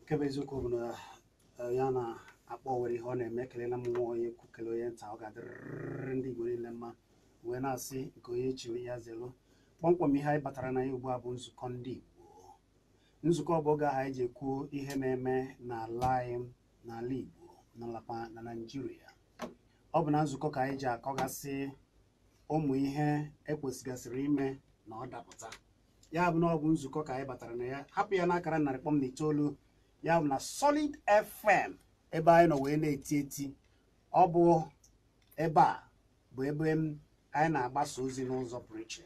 nkebe eziokwu bụ na eh, ya na-akpọ were ihe ọ na-eme kelela m nwa onye kwu onye nta ọ ga-adịrịrị ndị Igbo niile mma wee na-asị nke onye chiri ya zelu kpọmkwem ihe anyị batara na ya ugbu a bụ nzukọ ndị Igbo nzukọ bụ oge ahụ anyị ji ekwuo ihe na-eme n'ala anyị n'ala Igbo n'alapa na Naịjirịa ọ bụ na nzukọ ka anyị ji akọgasị ụmụ ihe ekwesịgasịrị ime na ọ dapụta ya bụ na ọ bụ nzukọ ka anyị batara na ya hapụ ya n'akara narị kpọm na itoolu ya bụ na Solid FM ebe anyị nọ wee na-eti eti ọ bụ ebe a bụ ebe anyị na-agbasa ozi n'ụzọ pụrụ iche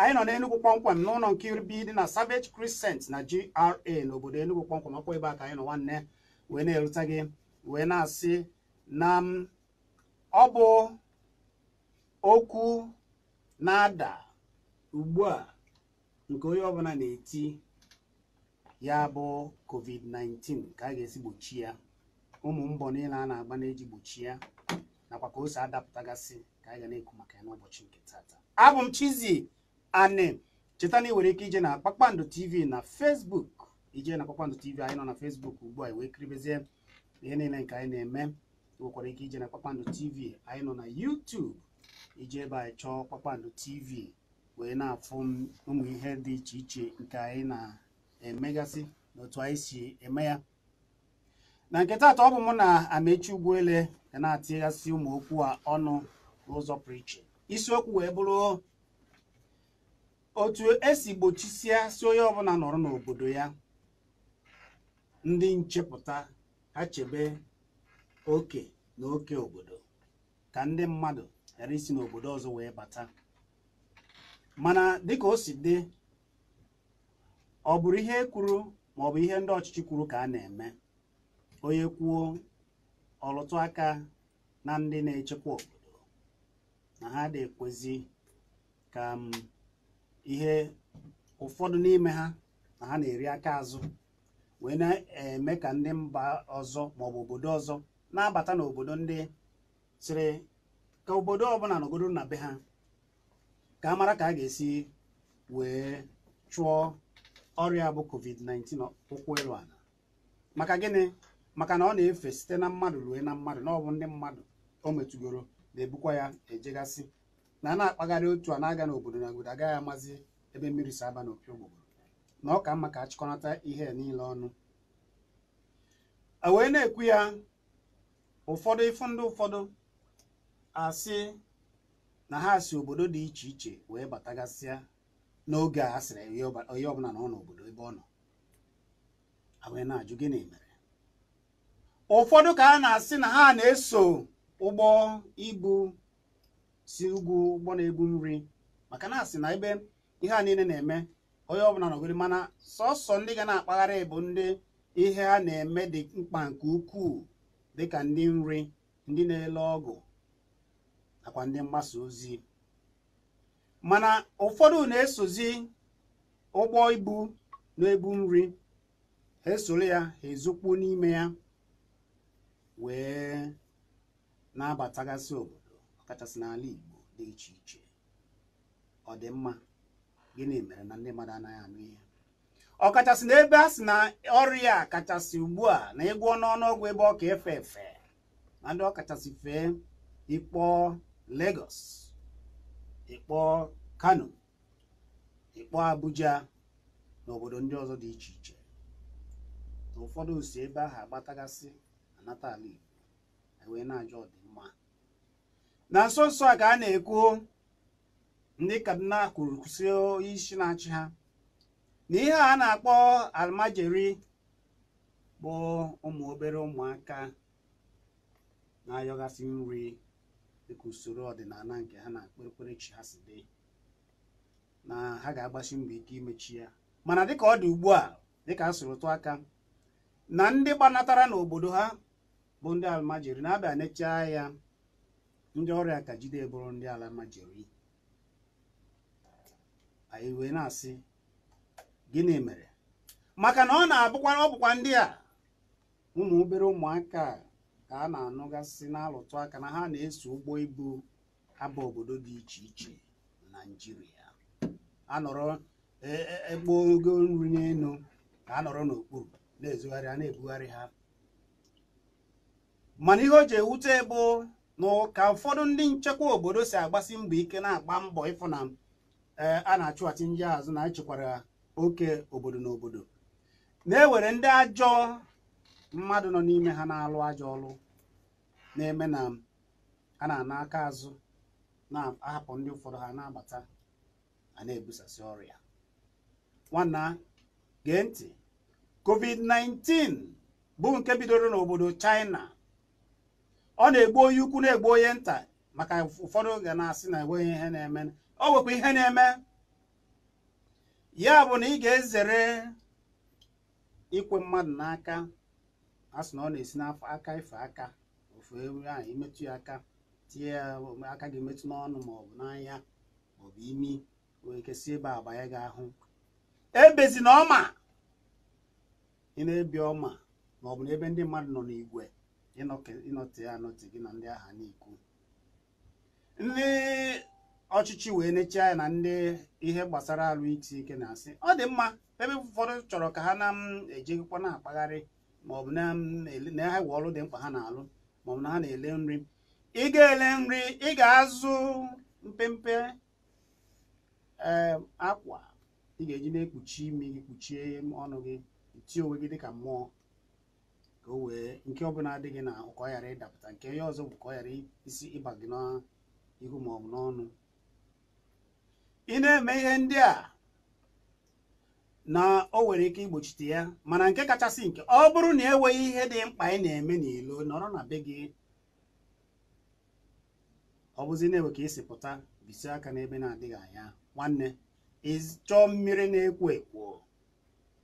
anyị nọ n'enugwu kpọmkwem n'ụlọ nke iribi dị na savage crescent na gra n'obodo enugwu kpọmkwem ọkwa ebe a ka anyị nọ nwanne wee na gị wee na-asị na um, ọ bụ okwu na-ada ugbu a nke onye ọbụla na-eti ya bụ covid-19 ka a ga-esi gbochi ya ụmụ mbọ niile a na-agba na-eji gbochi ya nakwa ka o si adapụtagasị ka anyị ga na-ekwu maka ya n'ụbọchị nke tata abụ m chizi anị cheta na ị nwere ike ije na kpakpando tv na fesbuk ije na kpakpando tv anyị nọ na fesbuk ugbu a wee kiribezie ihe niile nke anyị na-eme e nwekwara ike ije na kpakpando tv anyị nọ na youtube ije ebe anyị chọọ kpakpando tv wee na-afụ ụmụ ihe dị iche iche nke anyị na-emegasị n'otu anyị si eme ya na nke taata ọ bụ mụ na amechi ugwuele ga na-atịghasị ụmụ okwu a ọnụ n'ụzọ pụrụ iche isiokwu wee bụrụ otu esi gbochisie si onye ọbụla nọrọ n'obodo ya ndị nchepụta ha chebe oke na oke obodo ka ndị mmadụ ghara isi n'obodo ọzọ wee bata mana dịka o si dị ọ bụrụ ihe kwuru maọbụ ihe ndị ọchịchị kwuru ka a na-eme onye kwuo ọlụtụ aka na ndị na-echekwa obodo na ha dị ekwezi ka m. Mm, ihe ụfọdụ n'ime ha na ha na-eri aka azụ wee na-eme ka ndị mba ọzọ maọbụ obodo ọzọ na-abata n'obodo ndị sịrị ka obodo ọbụla nọgodo na be ha ka a mara ka a ga-esi wee chụọ ọrịa bụ covid-19 ụkwụ ịlụ ala maka gịnị maka na ọ na-efe site na mmadụ rue na mmadụ na ndị mmadụ o metugoro na-ebukwa ya ejegasị na a na-akpagharị otu a na-aga n'obodo na obodo agaghị amazi ebe mmiri si aba n'opi ogbogbo na ọ ka mma ka achịkọnata ihe niile ọnụ e wee na-ekwu ya ụfọdụ ịfụ ndị ụfọdụ asị na ha si obodo dị iche iche wee batagasịa n'oge a sịrị onye ọbụla na ọ n'obodo ebe ọ nọ a na-ajụ gịnị mere ụfọdụ ka a na-asị na ha na-eso ụgbọ ibu si ugwu ụgbọ na-ebu nri maka na asị na ebe ihe a niile na-eme onye ọbụla nọgoro mana sọsọ ndị ga na-akpagharị bụ ndị ihe ha na-eme dị mkpa nke ukwuu dịka ndị nri ndị na-ele ọgụ nakwa ndị mgbasa ozi mana ụfọdụ na-esozi ụgbọ ibu na-ebu nri ha esoro ya ha ezokpuo n'ime ya wee na-abatagasị obodo ọkachasị n'ala Igbo dị iche iche ọ dị mma gịnị mere na ndị mmadụ anaghị anụ ihe ọkachasị n'ebe a sị na ọrịa a kachasị ugbu a na ịgwọ n'ọnụọgwụ ebe ọ ka efe efe na ndị ọkachasị fee ịkpọ Lagos ịkpọ Kano ịkpọ Abuja na obodo ndị ọzọ dị iche iche na ụfọdụ si ebe ahụ agbatagasị anata ala Igbo e wee na-ajọ ọdịnihu na nsonso a ka a na-ekwu ndị kaduna kwuru si isi na-achị ha na ihe a na-akpọ almajeri bụ ụmụ obere ụmụaka na-ayọgasị nri dịka usoro ọdịnala nke ha na chi ha si dị na ha ga-agbasi mbọ ike imechi ya mana dịka ọ dị ugbu a dịka a sụrụ aka na ndị gbanatara n'obodo ha bụ ndị almajeri na-abịa nechaa ya ndị ọrịa ka jide bụrụ ndị ala majiri anyị wee na-asị gịnị mere maka na ọ na-abụkwa ọ bụkwa ndị a ụmụ obere ụmụaka ka a na-anụgasị na-alụtụ aka na ha na-eso ụgbọ ibu aba obodo dị iche iche na a anọrọ egbo e, e, ogo nri n'elu ka anọrọ n'okpuru na a na-ebugharị ha mana ihe o ji ewute bụ na ka ụfọdụ ndị nchekwa obodo si agbasi mbọ ike na-agba mbọ ịfụ na eh, a na-achụghachi ndị azụ na echekwara oke obodo na obodo na-ewere ndị ajọ mmadụ nọ n'ime ha na-alụ ajọ ọlụ na-eme na a na-ana aka azụ na-ahapụ ndị ụfọdụ ha na abata a na-ebusasị ọrịa nwanna gee ntị covid-19 bụ nke bidoro n'obodo China ọ na-egbu onye ukwu na-egbu onye nta maka ụfọdụ oge na-asị na enweghị ihe na-eme o nwekwa ihe na-eme ya bụ na ị ga-ezere ikwe mmadụ n'aka a na ọ na-esi n'afọ aka ife aka ofu ewu ahụ imetụ ya aka tinye ya aka gị metụ n'ọnụ maọbụ n'anya maọbụ imi wee kesị ebe abanye gị ahụ e na ọma ị na-ebi ọma maọbụ n'ebe ndị mmadụ nọ n'igwe ịnọte ya anọte gị na ndị agha n'ikwu ndị ọchịchị wee nechaa ya na ndị ihe gbasara alụ iti ike na-asị ọ dị mma ebe ụfọdụ chọrọ ka ha na-ejegịkwa na-akpagharị maọbụ na ha we ọrụ dị mkpa ha na-alụ maọbụ na ha na-ele nri ị ga-ele nri ị ga-azụ mpempe e, akwa ị ga-eji na-ekpuchi imi gị kpuchie ọnụ gị tie onwe gị dịka mmụọ ka o wee nke ọbụla adịghị na ka ọ ghara ịdapụta nke onye ọzọ bụ ka ọ ghara isi ịba gị n'ihu ma ọ bụ n'ọnụ ị na-eme ihe ndị a na o nwere ike igbochite ya mana nke kachasị nke ọ bụrụ na enweghị ihe dị mkpa ị na-eme n'ilo nọrọ na be gị ọ bụzi na-ewe ka esi pụta bisi aka n'ebe na-adịghị anya nwanne ịchọọ mmiri na-ekwo ekwo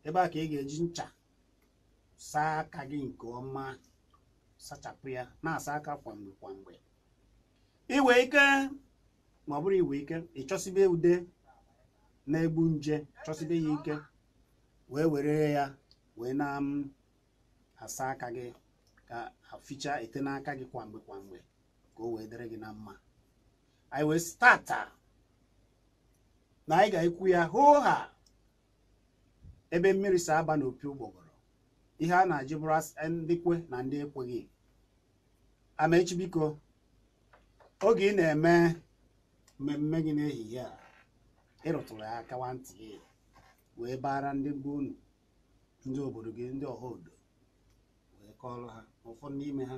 ebe a ka ị ga-eji ncha saa aka gị nke ọma sachapụ ya na-asa aka kwa mgbe kwa mgbe ike ma ọ bụrụ iwe ike ịchọsibe ude na-egbu nje chọsibe ya ike wee were ya wee na-asa aka gị ka aficha ete n'aka gị kwa mgbe kwa mgbe ka o wee dịrị gị na mma anyị wee stata na anyị ga-ekwu ya hoo ha ebe mmiri si aba n'opi ụgbọgọ ihe a na-ajụ bụrụ ndị kwe na ndị ekweghị Amaechi biko oge ị na-eme mmemme gị n'ehihie a ịrụtụrụ ya kawa ntị gị wee bara ndị be unu ndị obodo gị ndị ọha odo wee kọọrọ ha ụfọdụ n'ime ha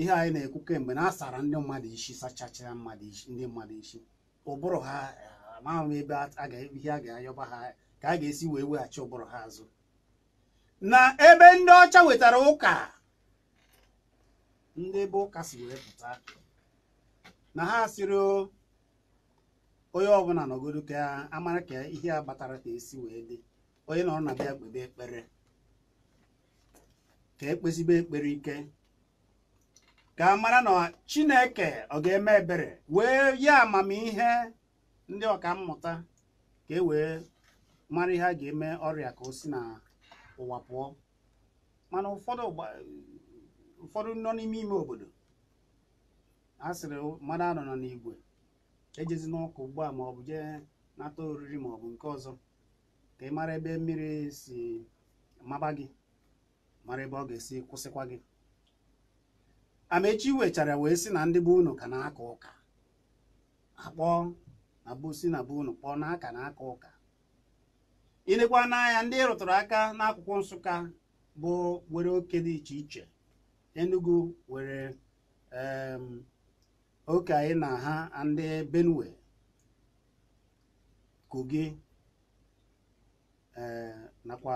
ihe anyị na-ekwu kemgbe na asara ndị mmadụ isi sachachara mmadụ isi ndị mmadụ isi ụbụrụ ha amaghị ebe ihe a ga-ayọba ha ka a ga-esi wee weghachi ụbụrụ ha azụ na ebe ndị ọcha wetara ụka ndị ebe ụka si wee pụta na ha siri onye ọbụla nọgodo ka amara ka ihe a batara ka esi wee dị onye nọrọ na bịa kpebe ekpere ka ekpezibe ekpere ike ka amara mara na chineke ọ ga-eme ebere wee ya amamihe ndị ọka mmụta ka e wee mara ihe a ga-eme ọrịa ka o si na ụwa pụọ mana ụfọdụ nọ n'ime ime obodo a sịrị mmadụ anọ nọ n'igwe ejezi n'ụka ugbu a ma ọ bụ jee nata oriri ma ọ bụ nke ọzọ ka ị mara ebe mmiri si maba gị mara ebe ọ ga-esi kwụsịkwa gị amaechi wechara wee sị na ndị bụ unu ka na-aka ụka akpọ na si na bụ unu kpọọ na aka na-aka ụka ịnekwa n'anya ndị rụtụrụ aka n'akwụkwọ nsụka bụ nwere oke dị iche iche enugu were oke anyị na ha ndị benue kogi e, nakwa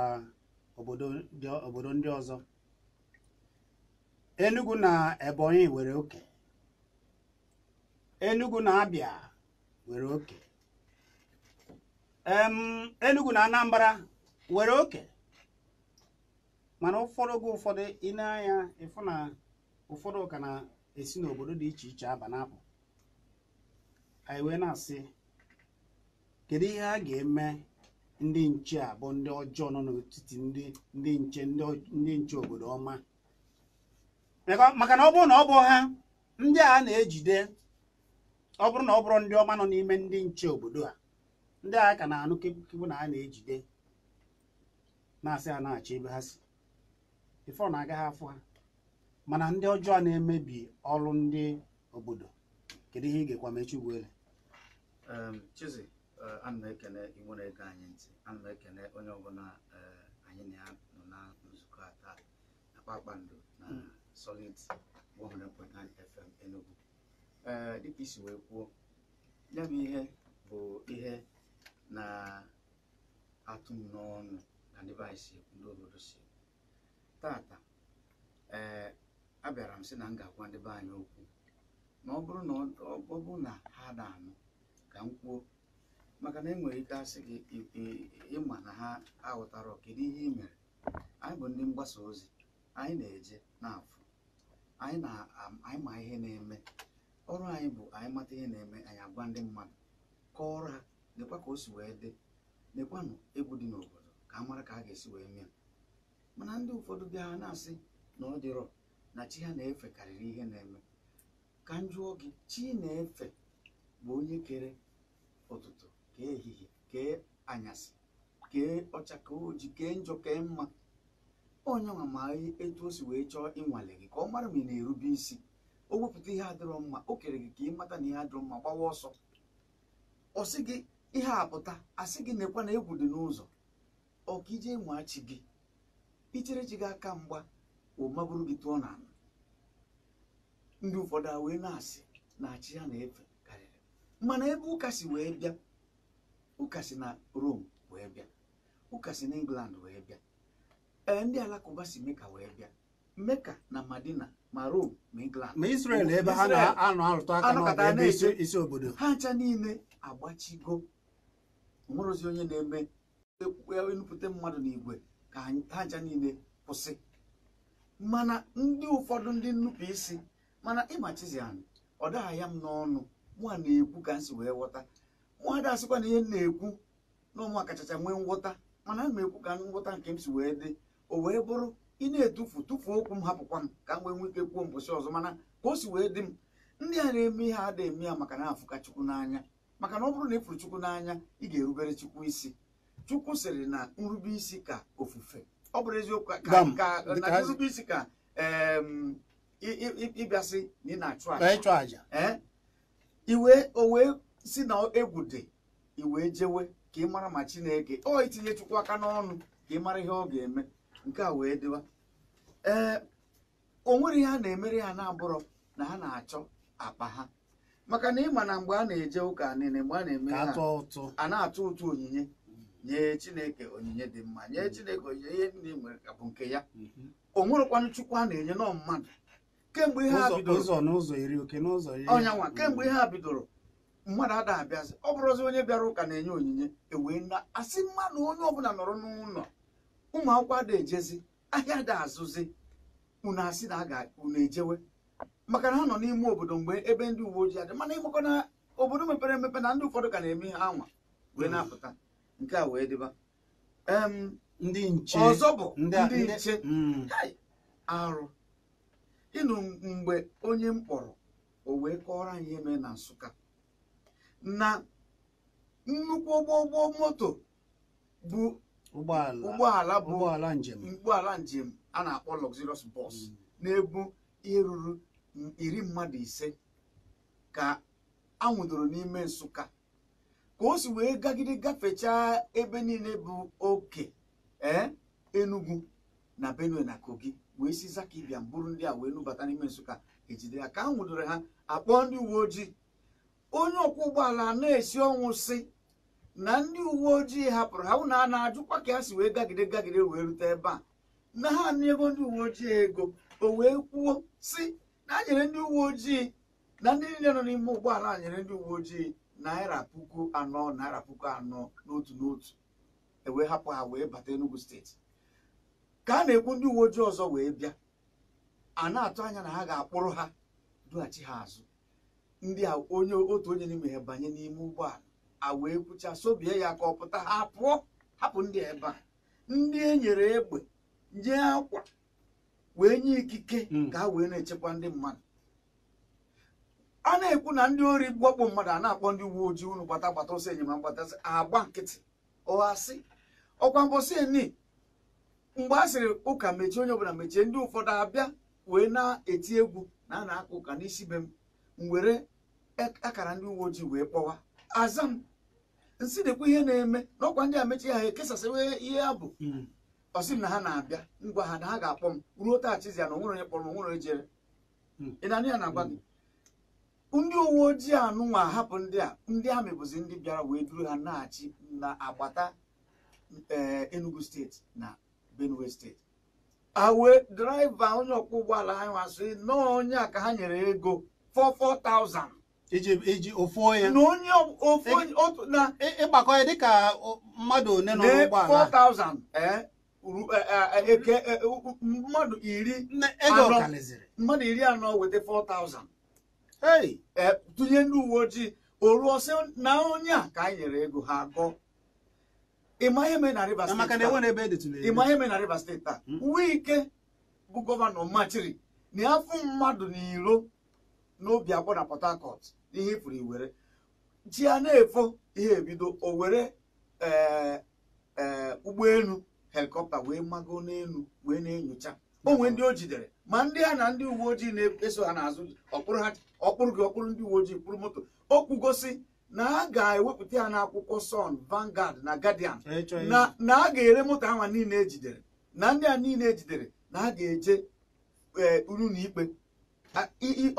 obodo ndị ọzọ enugu na ebonyi nwere oke enugu na abịa were oke Enugu na Anambra were oke mana ụfọdụ oge ụfọdụ ị na na ụfọdụ ka na-esi n'obodo dị iche iche aba na-apụ anyị wee na-asị kedu ihe a ga-eme ndị nche a bụ ndị ọjọọ nọ n'etiti ndị nche ndị nche obodo ọma maka na ọ bụrụ na ọ bụ ha ndị a na-ejide ọ bụrụ na ọ bụrụ ndị ọma nọ n'ime ndị nche obodo a ndị agha ka na-anụ kekpukekpu na a na-ejide na-asị ha na-achọ ebe ha si ife ọ na-agaghị afọ ha mana ndị ọjọọ na-emebi ọrụ ndị obodo kedu ihe ị ga-ekwa mechi ugbele Chizzy e, ana m ekene iwu na-ege anyị ntị ana m ekene onye ọbụla e, anyị na ya nọ na nzukọ a taa na kpakpando na hmm. Solid 100.9 FM Enugu ee dịka isi wee kwuo ya bụ ihe bụ ihe na-atụ m n'ọnụ na ndị si ndị obodo si tata ee eh, abịara m sị na m ga-agwa ndị be anyị okwu na ọ bụrụ na ọ bụ na ha na-anụ ka m kwuo maka na enwere ike asị gị ịma na ha aghọtara kedu ihe ị mere anyị bụ ndị mgbasa ozi anyị na-eje na-afụ anyị ma ihe na-eme ọrụ anyị bụ anyị mata ihe na-eme anyị agwa ndị mmadụ kọọrọ ha lekwa ka o si wee dị lekwanụ egwu dị n'obodo ka a mara ka a ga-esi wee mee mana ndị ụfọdụ bịa na-asị na ọ dịrọ na chi ha na-efe karịrị ihe na-eme ka m jụọ gị chi na-efe bụ onye kere ụtụtụ kee ehihie kee anyasị kee ọcha ka oji kee njọ kee mma onye nwa ma etu o si wee chọọ ịnwale gị ka ọ mara ma ị na-erube isi o wepụta ihe adịrọ mma o kere gị ka ị mata na ihe adịrọ mma gbawa ọsọ ọ sị gị ihe apụta asị gị nekwa na egwu dị n'ụzọ ọka ije machi gị ichere chi gị aka mgba omaburu gị tụọ na ala ndị ụfọdụ a wee na-asị na achị ha na-efe karịrị mana ebe ụka si wee bịa ụka si na Rom wee bịa ụka si na England wee bịa ee ndị alakụba si meka wee bịa meka na madina ma Rom ma England ma Israel ebe ha na-anọ arụtụ aka n'ọgụ ebe isi obodo ha ncha niile agbachigo nwerozi onye na-eme enupụta mmadụ na igwe ka ha ncha niile kwụsị mana ndị ụfọdụ ndị nnupụ isi mana ịmachizi anyị ọ dagha ya m n'ọnụ mụa na-ekwu ka m si wee ghọta mụa da asịkwa na ihe na-ekwu na ụmụ akachacha nwee ngwọta mana a ekwu ka ngwọta nke m si wee dị o wee bụrụ ị na-etufu tufuo okwu m hapụkwa m ka m wee nwee ike kwuo mbọchị ọzọ mana ka o si wee dị m ndị a na-eme ihe a da eme ya maka na afụka chukwu n'anya maka na ọ bụrụ na ị chukwu n'anya ị ga-erubere chukwu isi chukwu sịrị na nrube isi ka ofufe ọ bụrụ eziokwu ka nrube isi ka ịbịasị na ị na-achụ aja iwe o wee si na egwu dị iwe jewe ka ị mara ma chineke ọ itinye chukwu aka n'ọnụ ka ị mara ihe ọ ga-eme nke a wee dịwa ee o nwere ihe a na-emere ha na-abụrọ na ha na-achọ akpa ha maka na ịma na mgbe a na-eje ụka nile mgbe a na-eme ha a na-atụ ụtụ onyinye nye chineke onyinye dị mma nye mm-hmm. chineke onyinye ihe niile nwere bụ nke ya mm-hmm. o nwerekwanụ chukwu a na-enye nọ mmadụ kemgbe ihe ha bidoro mm-hmm. kemgbe ihe ha bidoro mmadụ ada abịazi ọ bụrụzi onye bịara ụka na-enye onyinye ewee na asị mmadụ onye ọbụla nọrọ n'ụlọ ụmụ akwụkwọ ada ejezi ahịa dị azụzi unu asị na a ga unu ejewe maka na ha nọ n'ime obodo mgbe ebe ndị uwe ojii adị mana ịgbakọ na obodo mepere emepe na ndị ụfọdụ ka na-eme ha anwa wee mm. na-apụta nke a wee dịba ndị nche ọzọ bụ ndị nche mm. arụ ịnụ mgbe onye m kpọrọ o wee kọrọ anyị eme mee na Nsụka na nnukwu ụgbọ ụgbọ moto bụ ụgbọala bụ ụgbọala njem a na-akpọ luxurious bọs mm. na-ebu ihe ruru iri mmadụ ise ka anwụdoro n'ime nsụka ka o si wee gagide gafechaa ebe niile bụ oke ee eh, enugwu na benue na kogi wee si zaka ịbịa bụrụ ndị a wee nubata n'ime nsụka ejide ya ka anwụdoro ha akpọ ndị uwe ojii onye ọkwọ ụgbọala na-esi ọnwụ si na ndị uwe ojii hapụrụ ha na a na-ajụkwa ka ha si wee gagide gagide wee rute ebe a na ha n'ego ndị uwe ojii ego o wee kwuo si na anyere ndị uwe ojii na ndị niile nọ n'ime ụgbọala a nyere ndị uwe ojii naira puku anọ naira puku anọ n'otu n'otu ewee hapụ ha wee bata Enugu steeti ka a na-ekwu ndị uwe ojii ọzọ wee bịa a na-atụ anya na ha ga-akpụrụ ha dughachi ha azụ ndị a onye otu onye n'ime ha banye n'ime ụgbọala a wee kwucha sobie ya ka ọ pụta ha pụọ hapụ ndị ebe a ndị e nyere egbe nye akwa wee nye ikike hmm. ka ha wee na-echekwa ndị mmadụ a na-ekwu na ndị ori gbakpọ mmadụ a na-akpọ ndị uwe ojii unu gbata gbata ọsọ enyemaka mgbatasị agba nkịtị ọghasị ọkwa mbọsị eni mgbe a sịrị ụka mechie onye ọbụla mechie ndị ụfọdụ abịa wee na-eti egwu na a na ụka n'isi be m were akara ndị uwe ojii wee kpọwa aza m nsị dekwa ihe na-eme na ọkwa ndị a mechie ha ekesasịwa ihe ya bụ hmm. ọsị m na ha na-abịa ngwa ha na ha ga-akpọ m ruo taachizi ya na onwere onye kpọrọ m onwere onye jere hmm. ịnanị ya na-agwa gị ndị uwe ojii anụnwa hapụ ndị a ndị amị bụzi ndị bịara wee duru ha na-achị na agbata eh, Enugu steeti na Benue steeti awe draiva onye ọkwọ ụgbọala ha nwa sị nọọ onye a ka ha nyere ego 44,000 iji ofu onye na onye ofu na e, e, ịgbakọ ya dịka mmadụ one nọ n'ụgbọala 4,000 ee eh, Eh, eh, eh, mmadụ iri mmadụ iri anọ weta 4000 ei tụnye ndị uwe ojii o ruo sị na onye a ka anyị nyere ego ha gụọ ịma ihe mee na Rivers steeti taa Wike e hmm? bụ gọvanọ machiri na afọ mmadụ n'iro n'obi akwọ na Port Harcourt n'ihe ifuru iwere ji ya na-efo ihe ebido o were ụgbọelu helikọpta wee mago n'elu wee na-enyocha onwe ndị o jidere ma ndị a na ndị uwe ojii na-eso ha n'azụ ọkpụrụ ha ọkpụrụ gị ọkpụrụ ndị uwe ojii kpụrụ moto o kwugosi na a ga-ewepụta ya n'akwụkwọ Sun vangard na Guardian na a ga-ere moto ahụ niile ejidere na ndị a niile ejidere na a ga-eje eh, uru na ikpe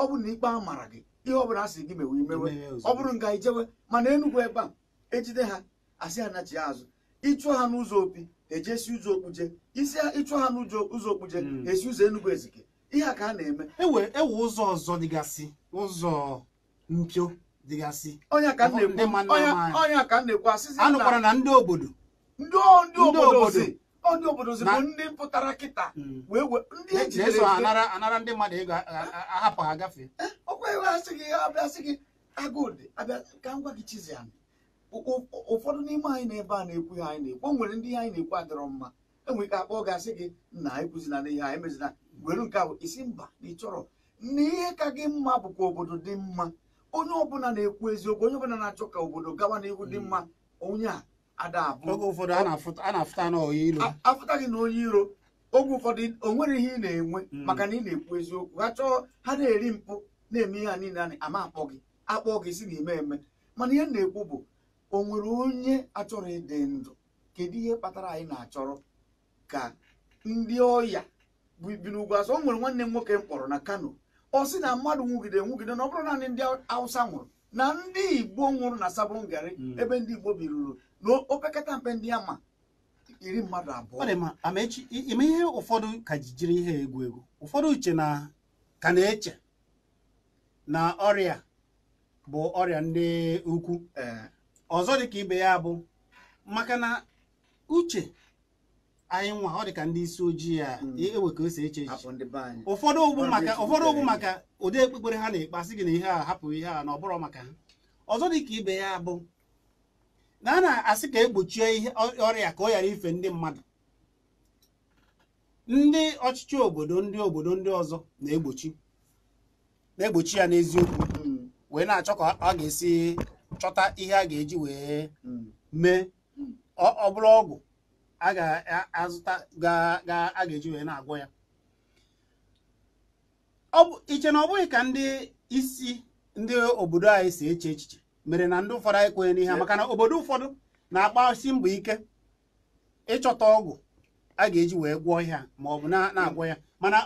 ọ bụrụ na ikpe a mara gị ihe ọ bụla si gị mewe imewe ọ bụrụ nga ijewe mana Enugu ebe a ejide ha asị ha nachi ya azụ ịchụọ ha n'ụzọ opi ejesi ụzọ okpuje isi ịchụ ha n'ụzọ ụzọ okpuje hmm. esi ụzọ enugwu ezike ihe a ka a na-eme ewe e ụzọ ọzọ dịgasị ụzọ mpio dịgasị onye ka na-ekwu asịsị anụkwara na ndị obodo ndị obodo si ndị obodo si bụ ndị mpụtara kịta hmm. wee wee ndị ejidere anara ndị mmadụ ego ahapụ ha gafee ọkwa eh, iwe asị gị abịa sị gị agụdị abịa ka m gwa gị chizi anụ ụfọdụ n'ime anyị na-ebe a na-ekwu ihe anyị na-ekwu onwere nwere ndị ihe anyị na-ekwu adịrọ mma enwere ike akpọ gasị gị na ekwuzina na ihe anyị mezina were nke ahụ isi mba na ị chọrọ na ihe ka gị mma bụkwa obodo dị mma onye ọbụla na-ekwu eziokwu onye ọbụla na-achọ ka obodo gawa n'ihu dị mma onye a ada oge ụfọdụ a na gị na onye iro oge ụfọdụ o nwere ihe ị na-enwe mm. maka na ị na-ekwu eziokwu ha chọọ ha na-eri mpụ na-eme ihe a niile ama akpọ gị akpọ gị si na ime eme mana ihe m na-ekwu bụ o nwere onye achọrọ ịdị ndụ kedu ihe kpatara anyị na-achọrọ ka ndị ọya ibi n'ugwu azụ o nwere nwanne m nwoke m kpọrọ na kano ọ sị na mmadụ nwugide nwugide na ọ bụrụ naanị ndị awụsa nwụrụ na ndị igbo nwụrụ na sabụrụ ngari hmm. ebe ndị igbo biruru na opekata mpe ndị ama iri mmadụ abụọ amaechi ime ihe ụfọdụ ka jijiri ihe egwu egwu ụfọdụ uche na ka na-eche na ọrịa bụ ọrịa ndị ukwu eh. ọzọ ka ibe ya bụ maka na uche anyị nwa ọ dịka ndị isi ojii a hmm. ewe ka o eche ụfọdụ ụgbụ maka ụfọdụ maka ụdị ekpekpere ha na-ekpe asị gị na ihe a hapụ ihe a na ọ bụrụ maka ha ọzọ dị ka ibe ya bụ na a na-asị ka egbochie ihe ọrịa ka ọ ghara ife ndị mmadụ ndị ọchịchị obodo ndị obodo ndị ọzọ na-egbochi na-egbochi ya n'eziokwu hmm. wee na-achọ ka ọ ga-esi chọta ihe a ga-eji wee hmm. mee hmm. ọ bụrụ ọgwụ a ga-azụta a ga-eji wee na-agwọ ya iche na ọ bụghị ka ndị isi ndị obodo anyị si eche echiche mere na ndị ụfọdụ anyị kwenye n'ihe maka na obodo ụfọdụ na akpasi mbọ ike ịchọta ọgwụ a ga-eji wee gwọọ ihe ma ọ bụ na-agwọ ya mana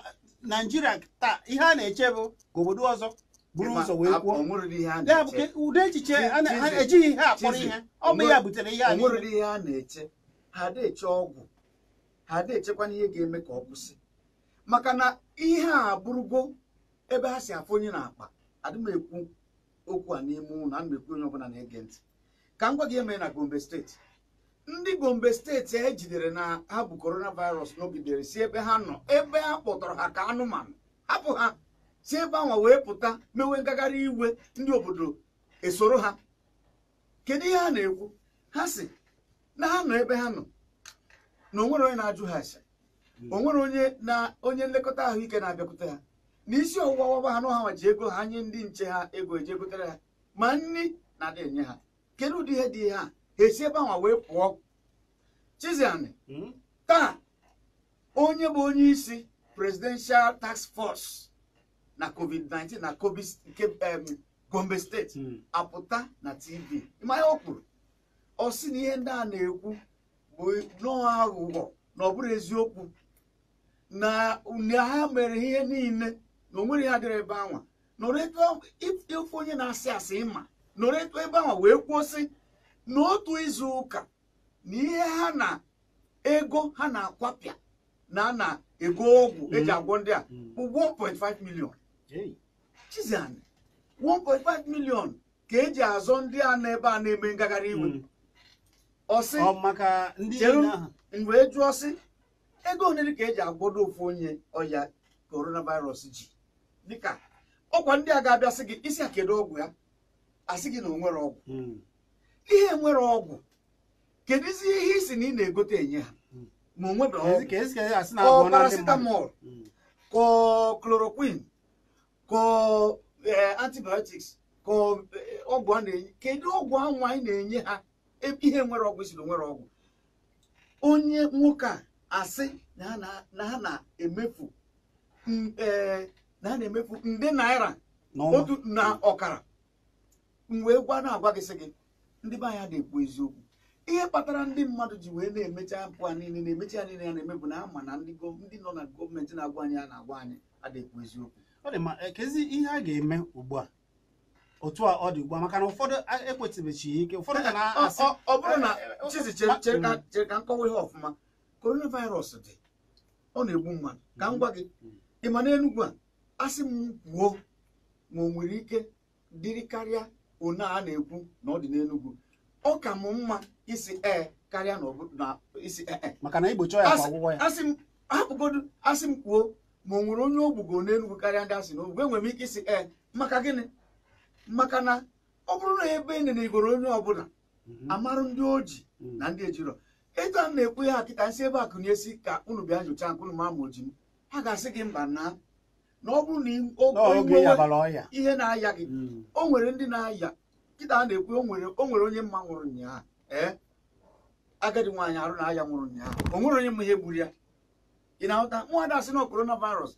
naijiria taa ihe a na-eche bụ ka obodo ọzọ buru ụzọ wee kwuo ya bụ ụdị echiche ejighị ihe akpọrọ ihe ọ bụ ya butere ihe anyị ihe a na-eche ha na-eche ọgwụ ha na-echekwana ihe ga-eme ka ọ kwụsị maka na ihe a bụrụgo ebe ha si afụ onye na-akpa adị m ekwu okwu a n'ime ụlọ ana m ekwu onye ọbụla na-ege ntị ka m gwa gị eme na Gombe steeti ndị Gombe steeti e jidere na ha bụ coronavirus n'ogidere si ebe ha nọ ebe ha kpọtọrọ ha ka anụmanụ hapụ ha si ebe anwa wee pụta mewe ngagharị iwe ndị obodo esoro ha kedu ihe ha na-ekwu ha si na ha nọ ebe ha nọ na onwere onye na-ajụ ha ase onwere onye na onye nlekọta ahụike na-abịakwute ha na isi ọwụwa ọgbaba ha na ọha ji ego ha nye ndị nche ha ego eji egotere ha ma nri na-adị enye ha kedu ụdị ihe dị ihe a ha esi ebe anwa wee pụọ Chiziani hmm? taa onye bụ onye isi presidential task force na covid-19 na Covid um, gombe steeti mm. apụta na tv ịmanya o kwuru ọ sị na ihe ndị a na-ekwu bụ nnọọ aghụghọ na ọ bụrụ eziokwu na ha mere ihe niile na o nwere dịrị ebe anwa nọrọ onye na-asị asị ịma nọrọ etu ebe ahụ wee kwuo sị n'otu izu ụka na ihe ha na ego ha na-akwapịa na na-ego ọgwụ eji hmm. agwọ ndị a hmm. bụ 1.5 million Chiziani 1.5 million ka eji azọ ndị a ebe a na-eme ngagharị iwe hmm. ọsị wee jụọ sị ego onye ka eji agwọdo ofu onye ọya coronavirus ji dịka ọkwa ndị a ga-abịa sị gị isi a ọgwụ ya asị gị na o nwere ọgwụ hmm. ihe nwere ọgwụ kedụzi ihe isi na ị na-egote enye ha hmm. ma o ọgwụ ọ paracetamol kọ chloroquine ka e, antibiotics ka e, ọgwụ a na-enye kedu ọgwụ ahụ anyị na-enye ha e, ihe nwere ọgwụ siri nwere ọgwụ onye nwoke a asị na ha na-emefu na ha na-emefu nde naira otu na ọkara wee gwa na-agwa gị sị gị ndị be anya na-ekwu eziokwu ihe kpatara ndị mmadụ ji wee na-emecha mpụ a niile na-emecha ya niile ya na-emebu na ama na ndị nọ na gọọmenti na-agwa anyị a na-agwa anyị na-ekwu eziokwu ọ dị ma ekezi ihe a ga-eme ugbu a otu a ọ dị ugbu a maka na ụfọdụ ekwetịbechi ya ike ụfọdụ ka na-asị ọ bụrụ na e, e, chizi chere ka nkọwa mm. ihe ọfụma coronavirus dị ọ na-egbu mmadụ ka m gwa gị mm. ị ma n'Enugwu a asị m kwuo ma o nwere ike dịrị karịa one a na-ekwu na ọ dị n'Enugwu, ọ ka m mma isi ee karịa na isi ee e. maka na igbochi ya kwa ọgwụgwọ ya asị m hapụgodu asị m kwuo ma onwere nwere onye ogbugo n'enugwu karịa ndị asị n'ogbugo enwere m ike isi ee eh, maka gịnị maka na ọ bụrụ na ebe ị na igoro onye ọbụla mhm. amarụ ndị oji mhm. na ndị ejirọ etu a na-ekwu ya kịta nsị ebe akụ na-esi ka unu bịa nyochaa nke ma ama oji m ha ga-asị gị mba na na ọ bụrụ na ihe na-aya gị mhm. o nwere ndị na-aya kịta a na-ekwu o nwere onye mma nwụrụ ụnyaahụ ee eh, agadi nwaanyị arụ na aya nwụrụ ụnyaahụ o nwere onye mma ihe gburu ya ị na-ahụta nwaada sị na korona virus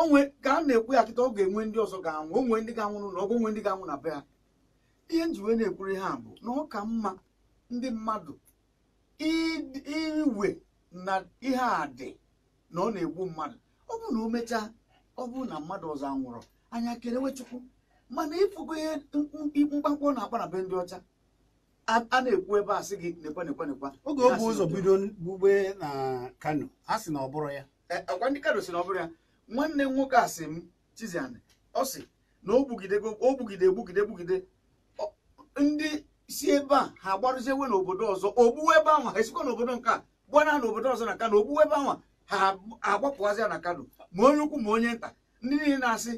onwe ka a na-ekwu ya kịta ọ ga-enwe ndị ọzọ ga-anwụ onwe ndị ga-anwụrụ na ọgwụ onwe ndị ga-anwụ na be ha ihe njiwe na-ekwuri ha bụ na ọ ka mma ndị mmadụ iwe na ihe a dị na ọ na-egbu mmadụ ọ bụrụ na o mechaa ọ bụrụ na mmadụ ọzọ anwụrụ anya kerewechukwu chukwu mana ịfụgo ihe mkpakpọ na-akpa na be ndị ọcha a na-ekwu ebe a sị gị nekwa nekwa nekwa oge o bụ ụzọ bido gbugbe na Kano a sị na ọ bụrụ ya e, ọkwa ndị Kano si na ọ bụrụ ya nwanne m nwoke a sị m Chiziani ọ sị na o gbugide gbugide gbugide ndị si ebe a ha agbarụziewe n'obodo ọzọ ogbuwe ebe ahụ ha esikwa n'obodo nke a gbana ha n'obodo ọzọ na Kano ogbuwe ebe ahụ ha agbapụazịa na Kano ma onye ukwu ma onye nta ndị niile na-asị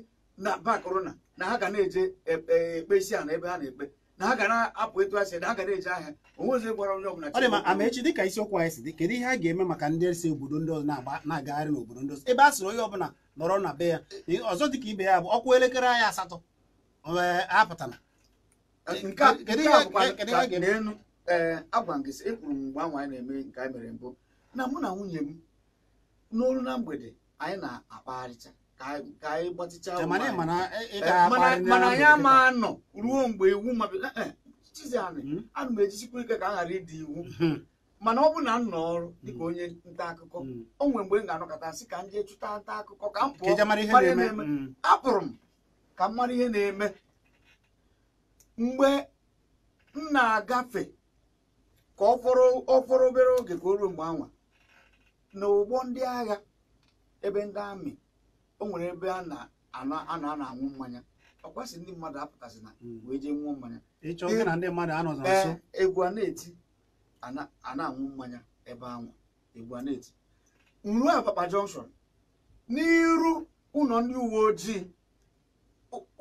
na ba korona na ha ga na-eje e, e, ekpe isi a na ebe ha na-ekpe na ha ga na-apụ etu asị na ha ga na-eji ahịa onwezi gbara onye ọbụla ọ dị ma ama echi dịka isiokwu anyị si dị kedu ihe a ga-eme maka ndị si obodo ndị ọzọ na-agagharị n'obodo ndị ọzọ ebe a sịrị onye ọbụla nọrọ na be ya ọzọ dịka ibe ya bụ ọkwụ elekere anyị asatọ apụtala elu agwa ngịsị ekwuru m mgbe anwa anyị na-eme nke anyị mere mbụ na mụ na nwunye m n'olu na mgbede anyị na-akpagharịcha ka anyị gbatịcha mana anyị ama eh, anọ ruo mgbe iwu eh, eh, ana hmm? m ejisikwa ike ka a ghara ịdị iwu hmm. mana ọ bụ na nọ ọrụ dịka hmm. onye nta akụkọ o nwere mgbe m ga-anọkọta sị ka m chụta nta akụkọ ka m pụọ apụrụ m ka m mara ihe na-eme mgbe m na-agafe ka ọ fọrọ obere oge ka o ruo mgbe anwa na ụgbọ ndị agha ebe ndị amị o nwere ebe a na a na-aṅụ mmanya ọkwasị ndị mmadụ apụtasị na hmm. wee jee nwụọ mmanya egwu a na-eti a na-aṅụ mmanya ebe anwụ egwu a na-eti nru a papa n'iru ụlọ ndị uwe ojii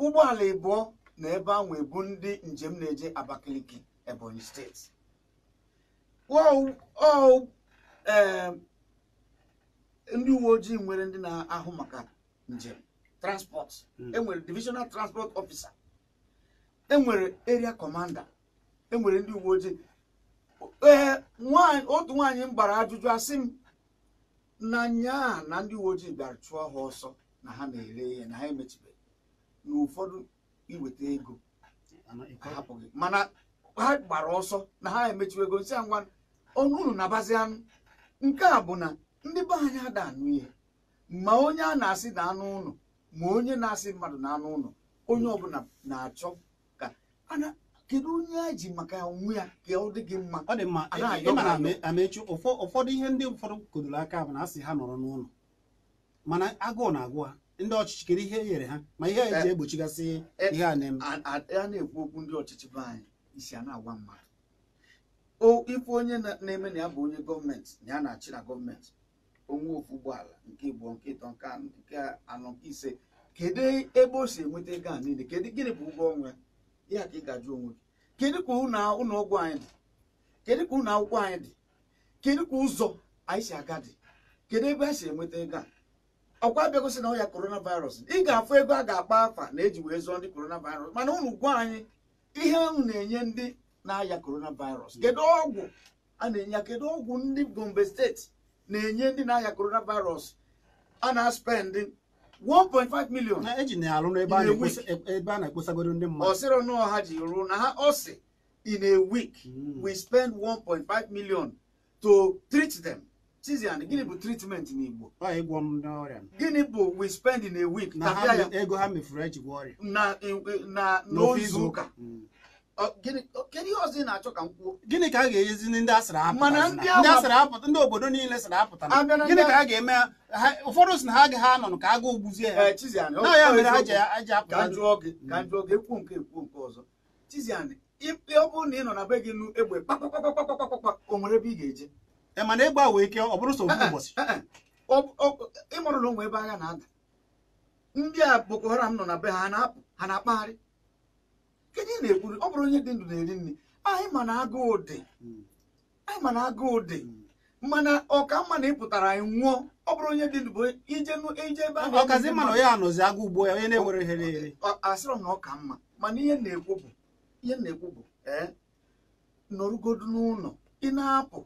ụgbọala ịbụọ na ebe ahụ ebu ndị njem na-eje Abakaliki Ebonyi steeti um, ndị uwe ojii nwere ndị na-ahụ maka njem transport hmm. enwere divisional transport officer enwere area commander enwere ndị uwe ojii ee otu nwaanyị m gbara ajụjụ asị m na nyaa na ndị uwe ojii bịara chụọ ha ọsọ na ha na-ere ihe na ha emechibeghị na ụfọdụ iweta ego ahapụghị mana ha gbara ọsọ na ha emechiwe ego a ngwa ọnụ unu na-abazi anụ nke a bụ na ndị be anyị ada anụ ihe ma onye a na-asị na anụ ụlọ ma onye na-asị mmadụ na anụ ụlọ onye ọbụla na-achọ ka ana kedu onye a ji maka onwe ya ka ọ dị gị mma ọ dị mma ị amechu ụfọdụ ihe ndị ụfọdụ kodoro aka bụ na asị ha nọrọ n'ụlọ mana agụụ na-agụ ha ndị ọchịchị kedu ihe e nyere ha ma ihe eji eh, egbochigasị eh, ihe a na-eme a na-ekwu okwu ndị ọchịchị be anyị isi a na-agwa mmadụ ife onye na-eme na ya bụ onye gọọmenti na ya na-achị na gọọmenti onwe ofu ụgbọala nke ịbụọ nke ịtọ nke nke anọ nke ise kedu ebe o si enweta ego a niile kedu gịnị bụ ụgwọ ọnwa ya ka ị onwe gị kedu ka ụlọ ọgwụ anyị dị kedu ka ụlọ akwụkwọ anyị dị kedu ka ụzọ anyị si aga dị kedu ebe a si enweta ego a ọkwa bịagosi na ọya korona virus ị ga-afụ ego a ga-akpa afa na eji wee zụọ ndị korona virus mana ụnụ gwa anyị ihe ahụ na-enye ndị na-aya korona virus kedu ọgwụ a na-enye ya kedu ọgwụ ndị gombe steeti na-enye ndị na-aya coronavirus a na-aspend 1.5 million na eji na-alụ n'ebe a e- na-ekposagoro ndị mmadụ ọsịrị ọnụ ọha ji ruo na ha ọsị in a week hmm. we spend 1.5 million to treat them Tizian, gịnị bụ treatment n'Igbo? Ịgwọ m n'ọrịa. Gịnị bụ we spend in a week? Na ego ha mefuru eji gwọ ọrịa. Na ozu ụka. gịnị ka a ga-enyezi ndị asịrị apụta ndị obodo niile sịrị apụta gịnị ka a ga-eme ụfọdụ si na ha agaghị anọ ka agụụ gbuzie ya eh, na ya mere ha ji apụta ọzọ na ị egbe o ga-eje eh, mana ike eh, ndị Boko Haram nọ na be ha na kedu ị na-ekwuru ọ bụrụ onye dị ndụ na-eri nri anyị ma na agụụ dị hmm. anyị ma na agụụ dị hmm. mana ọka mma na ịpụtara anyị nwụọ ọ bụrụ onye dị ndụ bụ ije ebe ahụ ọkazi mma na ya anọzi agụ ugbo ya onye na-enwere ihe na-eri asịrọ na ọka mma mana ihe na-ekwu bụ ihe na-ekwu bụ ee nọrụgodu n'ụlọ ị na-apụ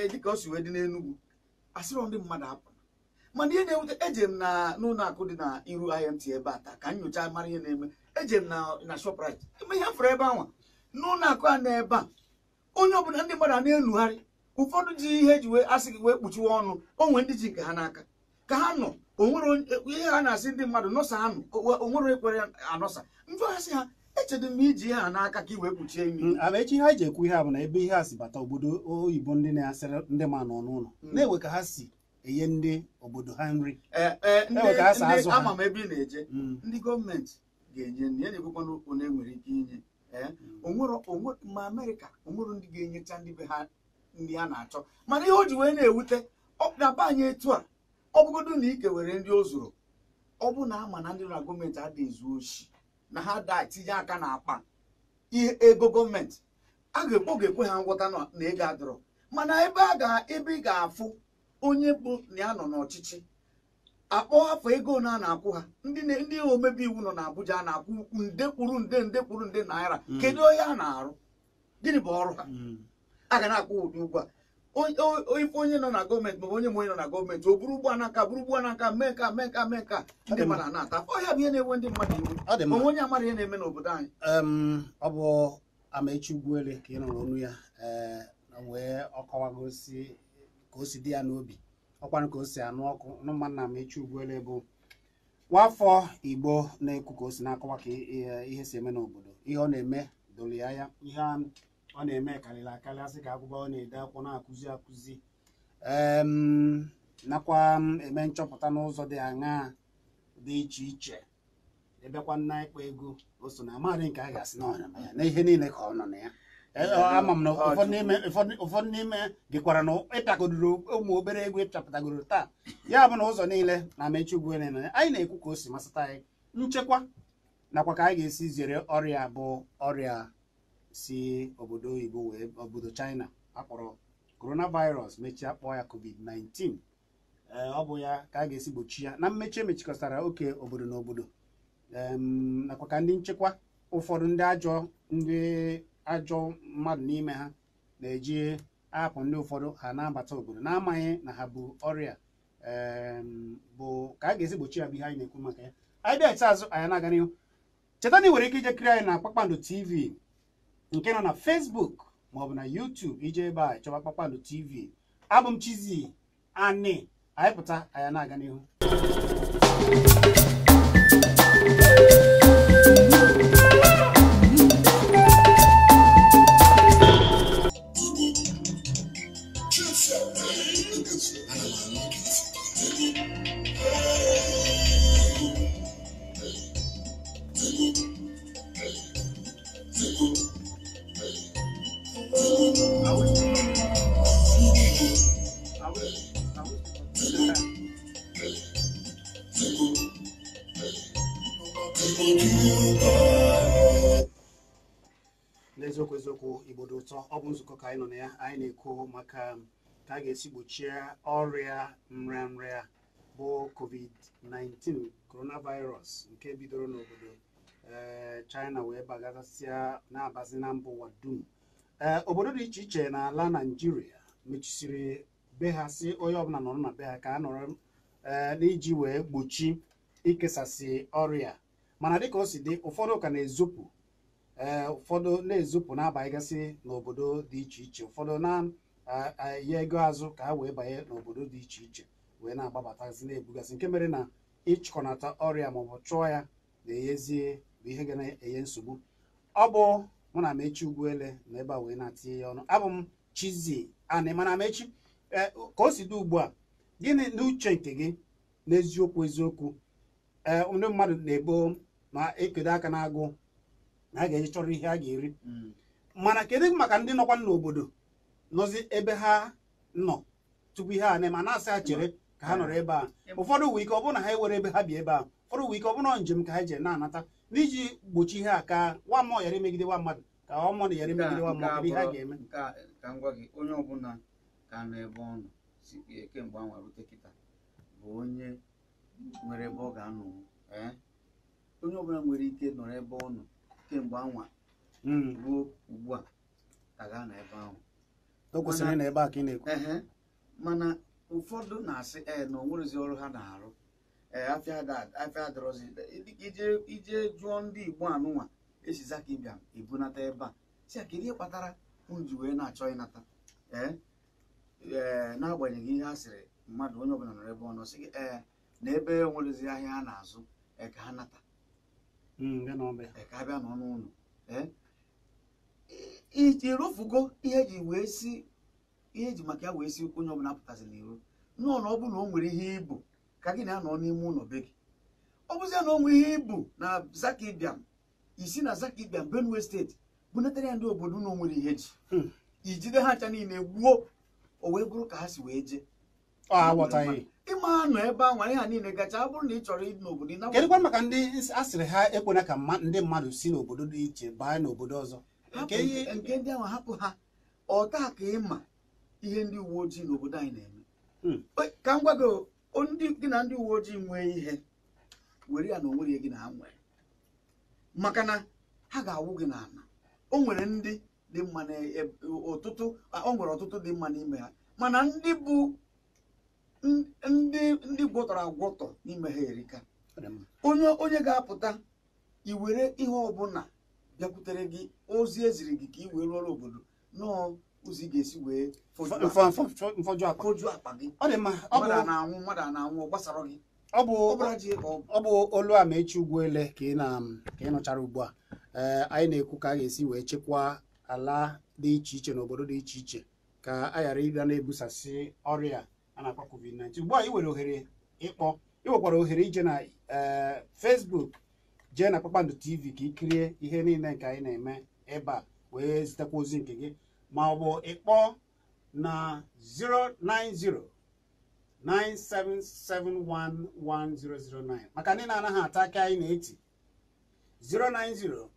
e, dịka o si wee dị n'Enugwu asịrọ ndị mmadụ apụ mana ihe na-ewute eji m na n'ụlọ akụ dị na iru IMT ebe a taa ka nyocha mara ihe na-eme eje m na shoprite eme ihe fere ebe anwa n'ụlọ akụ a na ebe a onye ọbụla ndị mmadụ na-enugharị ụfọdụ ji ihe eji wee asị gị wee kpuchiwe ọnụ onwe ndị ji nke ha n'aka ka ha nọ onwere ihe ha na-asị ndị mmadụ nọsa ha nọ onwere ekwere anọsa njụ asị ha echedo m iji ihe ha n'aka ka i wee kpuchie imi mm, ama echi ha ji ekwu ihe a na ebe ihe a bata obodo oyibo ndi na-asịrị ndi ma nọ n'ụlọ mm. na-enwe ka ha si enye ndi obodo ha nri eh, eh, ama m ebe ị na-eje mm. ndị gọọmenti ga-enye nri ya na-ekwekwana onye nwere ike inye ee eh? hmm. ma amerịka onwere ndị ga-enyecha ndị be ha ndị ha na-achọ mana ihe o ji wee na-ewute ọpụtaba anyị etu a ọ bụgodo na ike were ndị o zuru ọ bụ na ama na ndị na gọọmenti ada ezu na ha daa tinye aka na akpa ihe ego gọọmenti a ga-ekpo ga-ekwe ha ngwọta na ego adọrọ mana ebe ị ga-afụ onye bụ na ya nọ n'ọchịchị akpọọ afọ ego na a na-akwụ ha ndị omebe iwu nọ n'Abuja a na-akwụ nde kwuru nde nde kwuru nde naira mm. kedu onye a na-arụ gịnị bụ ọrụ ha mm. a ga na-akwụ ụdị ụgwọ a ife onye nọ na gọọmenti maọbụ onye ma onye nọ na gọọmenti o buru ugbo anaka buru ugbo anaka mee ka mee ka mee ka ndị mmadụ na-ata ọhịa bụ ihe na enwe ndị mmadụ iwu onwe onye amara ihe na-eme n'obodo anyị ọ bụ Amaechi Ugwuele ka ị nụrụ ọnụ ya eh, wee ọ ka o si dị ya n'obi ọkwanụ ka o si anụ ọkụ nna m echi ugbuele bụ nwafọ igbo na-ekwu ka o si na-akọwa ka ihe si eme n'obodo ihe ọ na-eme dolia ya ihe ọ na-eme karịrị akarị asị ka akwụkwọ ọ na-ede akwụkwọ na-akụzi akụzi nakwa eme nchọpụta n'ụzọ dị aṅaa dị iche iche ebekwa nna ịkpa ego o so na amaghị nke a ga-asị n'ọnya na ihe niile ka ọ nọ na ya Eh, ama m ụfọdụ n'ime dịkwara na ịtagodoro ụmụ obere egwu ịchapụtagoro taa ya bụ na ụzọ niile na mechi ugwu anyị na-ekwu ka o si masịta anyị nchekwa nakwa ka anyị ga-esi zere ọrịa bụ ọrịa si obodo oyibo wee obodo China akpọrọ coronavirus mechie kpọọ ya covid-19 eh, ọ bụ ya ka a ga-esi gbochi ya na mmechi emechikọtara oke obodo na obodo nakwa ka ndị nchekwa ụfọdụ ndị ajọ ndị ajọ mmadụ n'ime ha na-eji ahapụ ndị ụfọdụ ha na-abata obodo na-amaghị na ha bụ ọrịa bụ ka a ga-esi gbochi ya bụ ihe anyị na-ekwu maka ya anyị bịa azụ anyị na-aga n'ihu cheta na ị ike ije kiri anyị na kpakpando tv nke nọ na facebook bụ na youtube ije ebe a chọba kpakpando tv abụ m anyị pụta anyị na-aga n'ihu ụtọ ọ bụ nzukọ ka anyị nọ na ya anyị na-ekwu maka ka a ga-esi gbochie ọrịa nrịanrịa bụ covid-19 coronavirus nke bidoro n'obodo eh, China wee bagasịa na-abazi na mbụ ụwa dum eh, obodo dị iche iche na ala naijiria mechisiri be ha si onye ọbụla nọrọ na be ha ka a nọrọ eh, n'iji wee gbochi ikesasị ọrịa mana dịka o si dị ụfọdụ ka na-ezopụ ee eh, ụfọdụ na-ezupụ na gasị n'obodo dị iche iche ụfọdụ na-enye eh, eh, ego azụ ka ha wee banye n'obodo dị iche iche wee na-agbabatazi na-ebugasị nke mere na ịchịkọnata ọrịa maọbụ chụọ ya na eyezie bụ ihe ga na-enye nsogbu ọ bụ mụ na Mechi Ugwuele na ebe a wee na-atinye ya ọnụ abụ m chizie Ani mana Mechi ka o si dị ugbu a gịnị n'uche nke gị n'eziokwu eziokwu ee ndị mmadụ na-ebo ma ekedo aka na-agụ. na a ga-eji chọrọ ihe a ga-eri hmm. mana kedu maka ndị nọkwa n'obodo nọzi ebe ha nọ tupu ihe a na ma na-asị ha chere ka ha nọrọ ebe a ụfọdụ uwe ike ọ bụrụ na ha ewere ebe ha bi ebe a ụfọdụ uwe ike ọ bụrụ njem ka ha jere na-anata n'iji gbochi ihe a ka nwa mmụọ ghara imegide nwa mmadụ ka nwa mmụọ na ghara imegide nwa mmadụ ihe a ga-eme ka m gị onye ọbụla ka nọ ebe ọ nọ e, kemgbe anwa rute kịta bụ onye nwere ebe ọ ga-anọ eh? onye ọbụla nwere ike nọrọ ebe ọ nọ kemgbe anwa hmm. ruo ugbu a ka na ebe ahụ o mana ụfọdụ na-asị e na onwerezi ọrụ ha na-arụ ee afịa adịrọzi ije jụọ ndị Igbo anụnwa esi zaka ịbịa ebunata ebe a si a kedu ihe kpatara m ji wee na-achọ ịnata ee ee na-agbanyeghị ihe a sịrị mmadụ onye ọbụla nọrọ ebe ọ nọ sị gị ee na ebe enwerezi ahịa a na-azụ e ka ha nata ka abịa bịa nọ n'ụlọ iji rụfugo ihe ji wee si ihe ji maka ya wee si onye ọbụla pụtasịla iro nọọ na ọ bụrụ na o nwere ihe ibu ka gị na-anọ n'ime ụlọ be gị ọ bụzie na onwe ihe ibu na Zakibiam isi na Zakibiam Benue steeti bunatara ya ndị obodo na nwere ihe ji hmm. ijide ha ncha niile gbuo o wee bụrụ ka ha si wee jee ah, ma nọ ebe a nwere ha niile gacha ọ na ị chọrọ ịdị n'obodo maka ndị a sịrị ha ekwena ka ndị mmadụ si n'obodo dị iche baa n'obodo ọzọ nke ndị ahụ hapụ ha ọta ka ịma ihe ndị uwe ojii n'obodo anyị na-eme hmm. ka m gwago ndị gị na ndị uwe ojii nwee ihe were ya na onwere gị na ha nwere maka na ha ga-awụ gị n'ala o nwere ndị dị mma n'ụtụtụ e, o nwere ọtụtụ dị mma n'ime ha mana ndị bụ ndị ndị gwọtọrọ agwọtọ n'ime ha erika onye onye ga-apụta iwere ihe ọbụla bịakwutere gị ozi eziri gị ka i wee rụọrọ obodo nọọ ụzọ ga-esi wee foju akpa gị mmadụ a anwụ mmadụ a anwụ ọ gbasara gị ọ bụ olu a ma echi ugwuele ka ị nọchara ugbu a eh, anyị na-ekwu ka a ga-esi wee chekwaa ala dị iche iche na obodo dị iche iche ka a ghara ịga na-ebusasị ọrịa a na-akpọ covid-19 ugbu a ị nwere ohere ịkpọ ị nwekwara ohere ije na eh, Facebook jee na Kpakpando TV ka ị kirie ihe niile nke anyị na-eme ebe a wee zitekwa ozi nke gị ma ọ bụ ịkpọ na 090 9771109 maka ndị na-anaghị ata aka anyị na-eti 090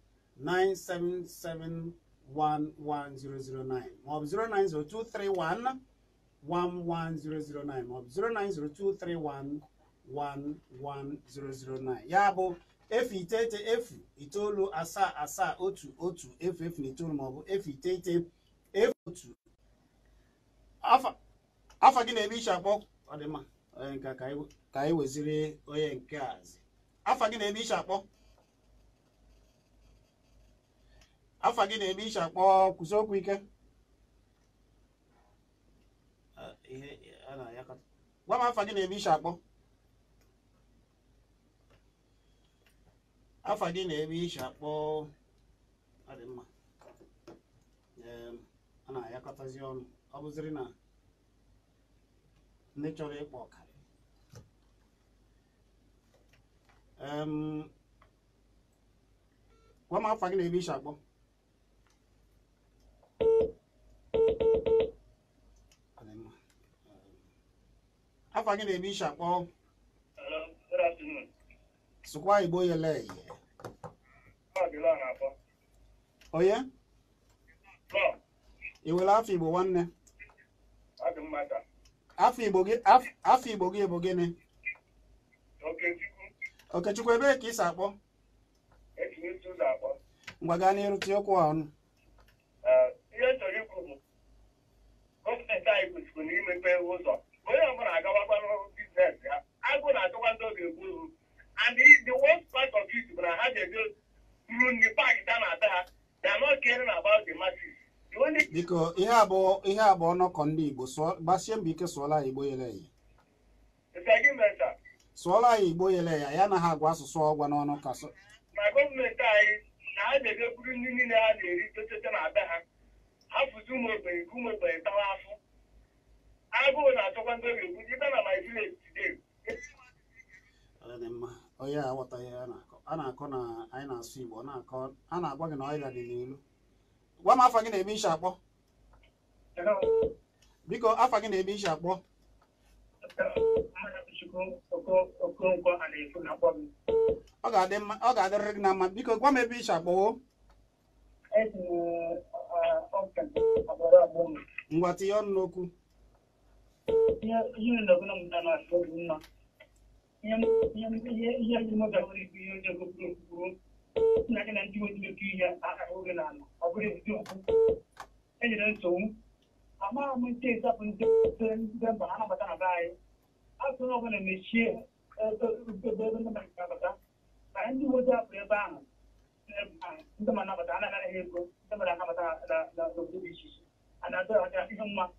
9771109 maọbụ 090 231 11009 maọbụ 09023111009 ya bụ efu iteghete efu itoolu asaa asaa otu otu efu efu na itoolu maọbụ efu iteghete efu otu afọ gị na-eme iche akpọ ọdịmma ka anyị onye nke azi afọ gị na-eme akpọ afọ gị kwụsị okwu ike ihe a na-ayakọta gwa m afa gị na-eme isi akpọ afa gị na-eme isi akpọ ọ dị mma a na-ayakọtazi ọnụ ọ bụziri na ndị chọrọ ịkpọ ọkara gwa m afa gị na-eme isi akpọ afọ gị na-eme ishi akpọ sụkwa igbo yele onye ị nwere afọ igbo nwanne eh? afọ igbo gị bụ gịnị okechukwu ebee ka ị si e akpọ ngwa gaa n'iru tinye okwu ha ọnụ eh, ihe chọrọ ikwu bụ gọọmenti anyị kwesịrị imepe ụzọ onye ọbụla agawakwa n'ọrụ biznes ya agụ na-achọkwa ndị oge ga-egbu uru and the worst part of it bụ na ha ga-eje ruru nri paakị ta na ada ha they are not caring about the masses biko ihe abụọ ihe abụọ ọnọkọ ndị igbo gbasie mbọ ike sụọla ya igbo yele ya sụọla ya igbo yele ya ya na ha agwa asụsụ ọgwa n'ọnụ ka na gọọmenti anyị na ha na-ebe buru nri niile ha na-eri tochete na ada ha hapụzi ụmụ ogbenye ka ụmụ ogbenye tawa afọ agụụ na-achọkwa ndị oge egbu ibe na my village dị mma onye a aghọtaghị ya na-akọ a na-akọ na anyị na-asụ ọ na-akọ a na-agwa gị na gị na-eme ishi akpọ biko afa gị na-eme ishi akpọ ọ ga-adịrịrị gị na mma biko gwa m ebe ishi akpọwo ngwa tinye n'okwu ya kuna mntana wasiozima yajimotakuri yonjagokuru nakena ndiwojimekiya akaogenana akurezidioku enjeren sowu amma mun te sapun dan bahana batana baye asuna kana meshe bebena manta bata kan di wota pre bang ndama na batana na hego ndama na batana da da da bishi ana da ta ihimma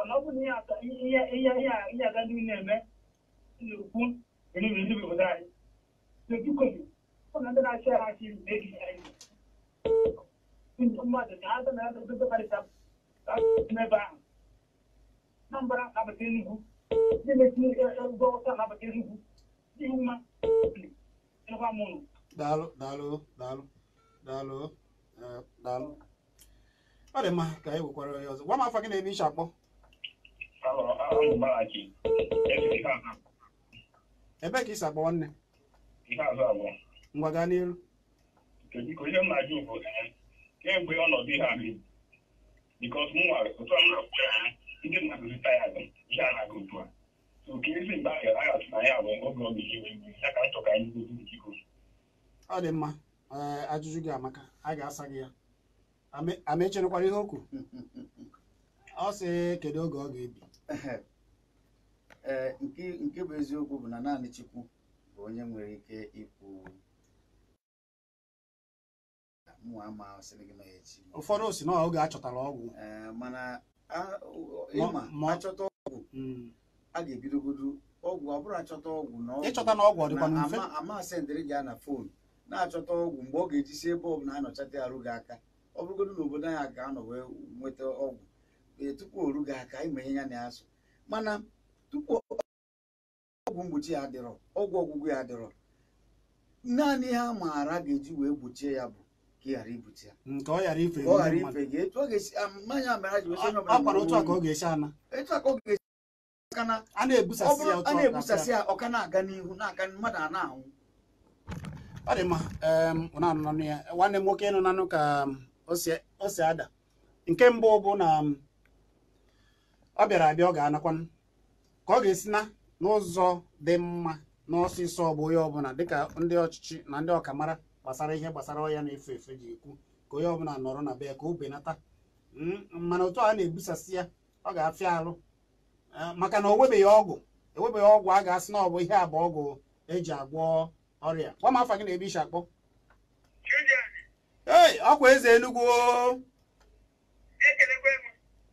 kɔnɔbu ni y'a i ya i ya i ya i ya ka dumuni nɛ mɛ kun ni bi ni bi o da ye depuis covid on a dana se a si ne bi a ye n ma deli an dana dɔ dɔ bari sa ka mɛ ba n'an bɔra a bɛ kɛ nugu ne bɛ tini dɔw ta a bɛ kɛ nugu ni u ma fili ne ko a mun. daalo daalo daalo daalo daalo ọ dị mma ka anyị nwekwara ya ọzọ gwa m afọ gị na-ebe iche akpọ ebe ka isi agbawa nne ngwa gaa n'iru kemgbe ọnọdụ ihe ahụ bikos mụnwa otu a m na-akpọ ya ndị mmadụ zụta ya ihe a na-aga otu a so ka ezi mgbe ahụ aghachi na ya bụ oge ọ ga-eji wee mgbe ya ka nchọ ka anyị gozi biko ọ dị mma ajụjụ gị amaka a ga-asa gị ya amecherekwara ihe okwu?" ọ sị kedu oge ọ ga-ebi ee eh, eh, nke bụ eziokwu bụ na naanị Chukwu bụ onye nwere ike ikwu ụfọdụ si na oge achọtara ọgwụ eh, mana achọta ọgwụ hmm. a ga-ebidogodu ọgwụ ọ bụrụ achọta ọgwụ ịchọta na ọgwụ ọ dịkwa mfe amasị ndịrị gị na foonu na-achọta ọgwụ mgbe ọ ga-eji si ebe ọ bụla anọchata arụ gị aka ọ bụrụgodu na obodo anyị ga-anọ wee nweta ọgwụ ee eh, tupu oru gị aka ya na-azụ mana tupu ọgwụ mgbochi ya adịrọ ọgwụ ọgwụgwụ ya adịrọ naanị ihe a maara ga-eji wee gbochie ya bụ ka ị nke ọ ghara ife gị ọ ga ọ ga-esi a a na na um, nwanne m nwoke nanụ um, nke bụ na um, ọ bịara abịa ọ ga-anakwa ka ọ ga-esi na n'ụzọ dị mma n'ọsịsọ ọ bụ onye ọbụla dịka ndị ọchịchị na ndị ọkamara gbasara ihe gbasara ọya na-efe efe ji ekwu ka onye ọbụla nọrọ na be ya ka o benata hmm, mana otu a na-ebusasị ya ọ ga-afịa alụ eh, maka na o webeghị ọgwụ ewebeghị ọgwụ a ga-asị na ọ bụ ihe abụ ọgwụ eji agwọ ọrịa gwa m afa gị na ebe ishi akpọ ee, ọkwa eze enugwu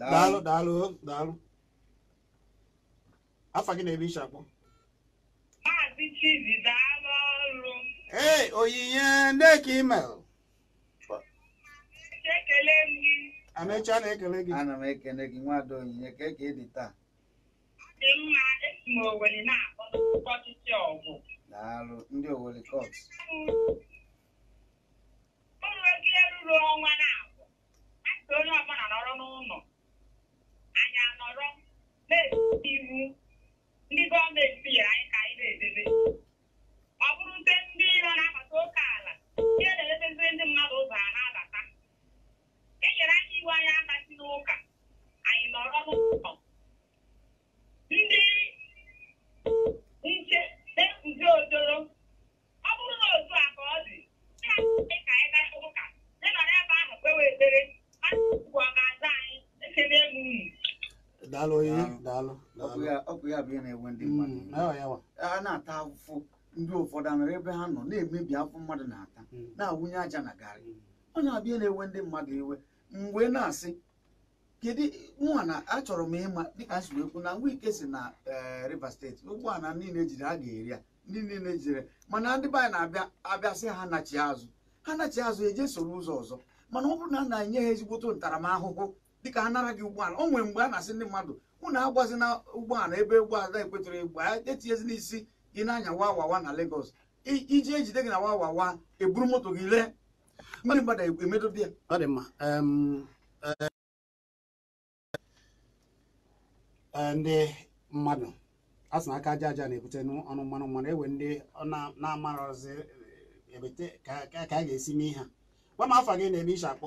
daalụ daalụ daalụ afa gị na ebi iche maazị ọrụ ee onyinye ndeke email ekele gị amecha na-ekele gị ana m ekele gị nwada onyinye ka eke dị taa dị mma esi m Owere na-akpọ ọgụ daalụ ndị onye ọbụla nọrọ n'ụlọ anyị anọrọ na-edobe iwu ndị gọọmenti nyere anyị ka anyị na-edebe ọ bụrụ nte ndị iro na-abata oke ala ihe na-edebeziri ndị mmadụ ụzọ a na-abata e nyere anyị iwu anyị abasi n'ụka abịa na-enwe hmm, mmadụ a na-ata afụfụ ndị ụfọdụ anọrọ ebe ha nọ na-emebi afọ mmadụ na-ata hmm. na-awụnye aja na garị ọ hmm. na-abịa na-enwe ndị mmadụ iwe mgbe na-asị kedu mụnwa na achọrọ m ịma dịka nsi ekwu na ngwa ike si na eh, Rivers steeti ụgbọala niile ejiri ha ga-eri ya ndị niile ejire mana ndị be anyị na-abịa abịasị ha nachi azụ ha nachi azụ eje soro ụzọ ọzọ mana ọ bụrụ na a na-enye ha ezigbote ntaramahụhụ dịka ha nara gị ụgbọala o nwere mgbe a na-asị ndị mmadụ unu na ụgbọala ebe ụgbọala ekwetụrụ egbu etinyezi n'isi gị n'anya wawawa na Lagos iji ejide gị na wawawa eburu moto gị lee ndị mmadụ e, emedobe ya ndị mmadụ asị na aka aja aja na-ebute ọnụ mmanụ mmanụ ewe ndị na-amarọzi ebete e ka a ga-esi mee ha gwa m afa gị na-eme iche akpọ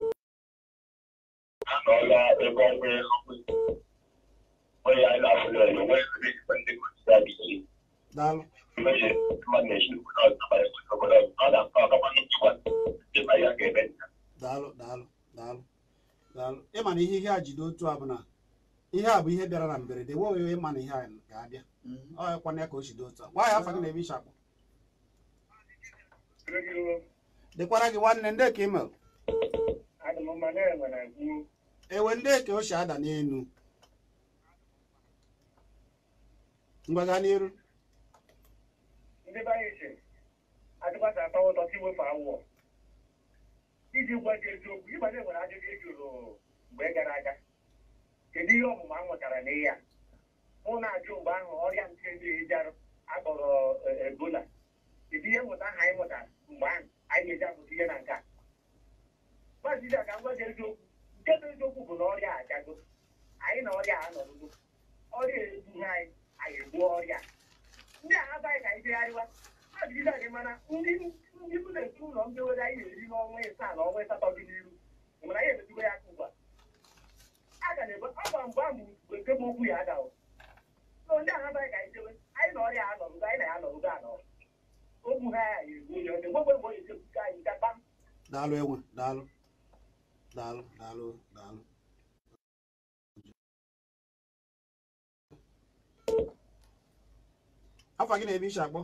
n'ọnwa ebe ọnwa onye anyị na-afụlọ ya onwe ndị ike mmehie mmadụ na-eji obodo ọzọ ọ na-akpa ọkapa ndị ma ya ga-eme ihe a otu a bụ na ihe a bụ ihe bịara na mberede nwe ịma na ihe a ga-abịa mhm. ọ ya ka o otu a ya afọ gị na gị nwanne ndị ka ị ewe ndị eke o si ada n'elu mgbaga n'iru iji gwa gị eziokwu ịbanye nwere ajụjụ ị jụrụ mgbe gara aga kedu ihe ọmụma a nwetara n'ihe a mụ na-ajụ mgbe ahụ ọrịa nke ndị akpọrọ e, ebola kedu ihe mmụta ahụ anyị mụtara mgbe ahụ anyị ga-eji apụta ihe na nke a maazị ka m gwa gị eziokwu nke bụ eziokwu bụ na ọrịa agago anyị na ọrịa a anọrụgo ọrịa egbughị anyị anyị egbuo ọrịa ndị a abaghị ka anyị jegharịwa a jiriga gị mana ndị ndị mụ na nke ụlọ mbewere anyị na-eri n'ọnwa ịsaa na ọnwa ịsatọ dị n'iru mgbe anyị emezigo ya aka ugbu a aga na-ebe ọgba gwa mgbe a nke bụ okwu ya agawo so ndị ahụ abaghị ka anyị anyị na ọrịa anọrụgo anyị na ya anọrụgo anọrụ ogbu ha ya egbu onye ọdị nwegbe mgbe onye jebuga anyị ga kpam daalụ enwe daalụ daalụ daalụ daalụ afa gị na ebi iche akpọ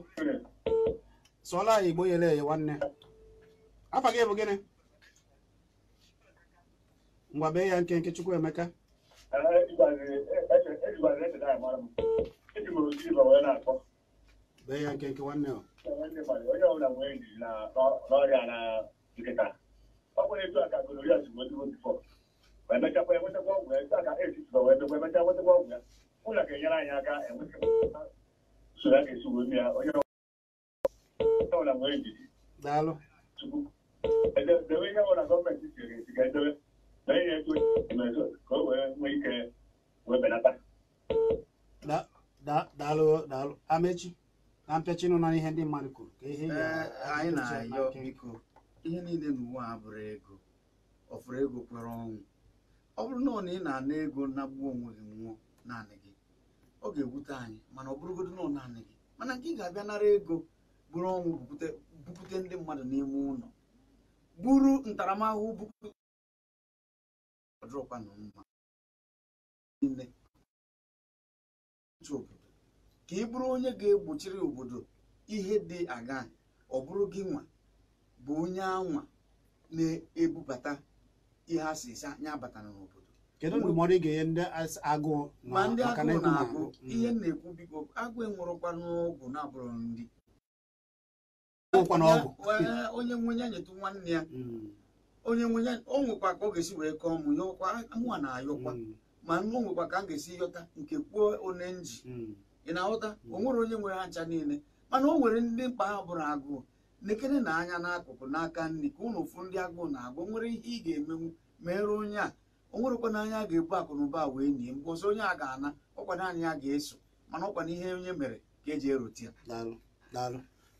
anyị igbo nyere ya nwanne afa gị bụ gịnị ngwa bee ya nke nke chukwu emeka bee ya nke nke nwanne ọ ọ bụrụ etu ọgwụ ya ọgwụ ya ụlọ ga-enyere anyị aka a ya onye ọbụla nwere njiji tupu debe ga na ihe etu emezo ka o daalụ na na ihe ndị mmadụ kwuru ka ihe ihe niile n'ụwa a bụrụ ego ọ fụrụ ego kwere ọnwụ ọ bụrụ na ọ na ị na-ana ego nagbuo onwe gị nwụọ naanị gị ọ ga ewute anyị mana ọ bụrụgodo na ọ naanị gị mana nke ị ga-abịa nara ego bụrụ ọnwụ bupute ndị mmadụ n'ime ụlọ buru ntaramahụhụ na bupụtadụrụkwanamma niile obodo ka ị bụrụ onye ga-egbochiri obodo ihe dị aga ọ bụrụ gị nwa bụ onye anwa na-ebubata ihe a sị anya batara n'obodo kedu ị ga-enye ndị agụụ ma ndị agụụ na-agụ mm. ihe na-ekwu biko agụụ enwụrụkwa n'ọgwụ na-abụrụ ndị onye nwenye nyetụ nwanne ya mm. onye nwenye o nwekwa ka ọ ga-esi wee kọọ mụ yọkwa mụa na-ayọkwa mm. ma o nwekwa ka m ga-esi yọta nke kwuo one nji ị na-aghọta o nwere onye nwere ha ncha niile mana o nwere ndị mkpa ha bụrụ agụụ lekere na anya n'akụkụ n'aka nri ka ụnụ ụfụ ndị agụụ na-agụ nwere ihe ị ga-emenwu mere onye a o nwerekwana n'anya a ga-ebu akụ na ụba wee nie mgbe ọzọ onye a ga-ana ọkwana anyị ya ga-eso mana ọkwana ihe onye mere ka eji erute ya daalụ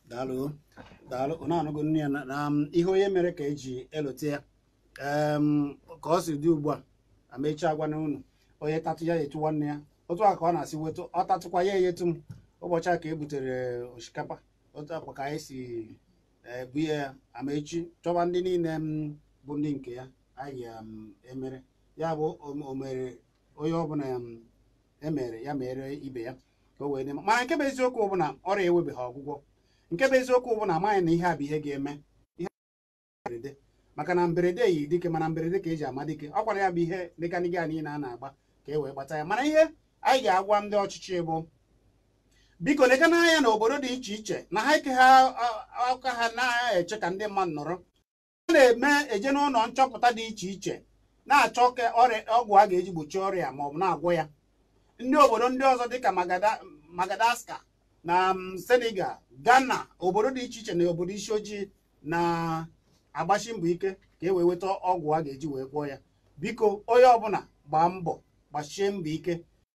daalụ daalụ ọ na-anụgo nne ya na um, ihe onye mere ka eji elote ya ka ọ si dị ugbu a amechaa gwa na unu onye tatụ ya etu nwanne ya otu a ka ọ na-asị wetu ọ tatụkwa ya eyetu m ụbọchị a ka e butere eh, osikapa otu akwa ka anyị si ebuye eh, ya amaechi chọba ndị niile m mm, bụ ndị nke ya anyị mm, emere ya bụ mm, omere onye ọbụla emere ya mere ibe ya ka o wee dị mana nke bụ eziokwu bụ na ọrịa ewebeghị ọgwụgwọ nke bụ eziokwu bụ na amaghị na ihe a bụ ihe ga-eme ihe mberede maka na mberede yi dike mana mberede ka eji ama dike ọ gwara ya bụ ihe dịka a niile a na-agba ka e wee gbata ya mana ihe anyị ga-agwa ndị ọchịchị bụ biko lega n'anya na obodo dị iche iche na ha ike ha aka ha na-eche ka ndị mmadụ nọrọ a na-eme eje n'ụlọ nchọpụta dị iche iche na-achọ ka ọgwụ a ga-eji gbochie ọrịa ma ọ bụ na-agwọ ya ndị obodo ndị ọzọ dịka Madagascar na Senegal Ghana obodo dị iche iche na obodo isi ojii na-agbachi mbọ ike ka e wee ọgwụ a ga-eji wee gwọọ ya biko onye ọbụla gbaa mbọ gbachie mbọ ike